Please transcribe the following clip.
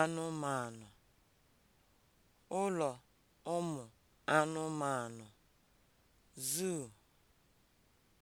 anụmanụ, ụlọ ụmụ anụmanụ (zoo)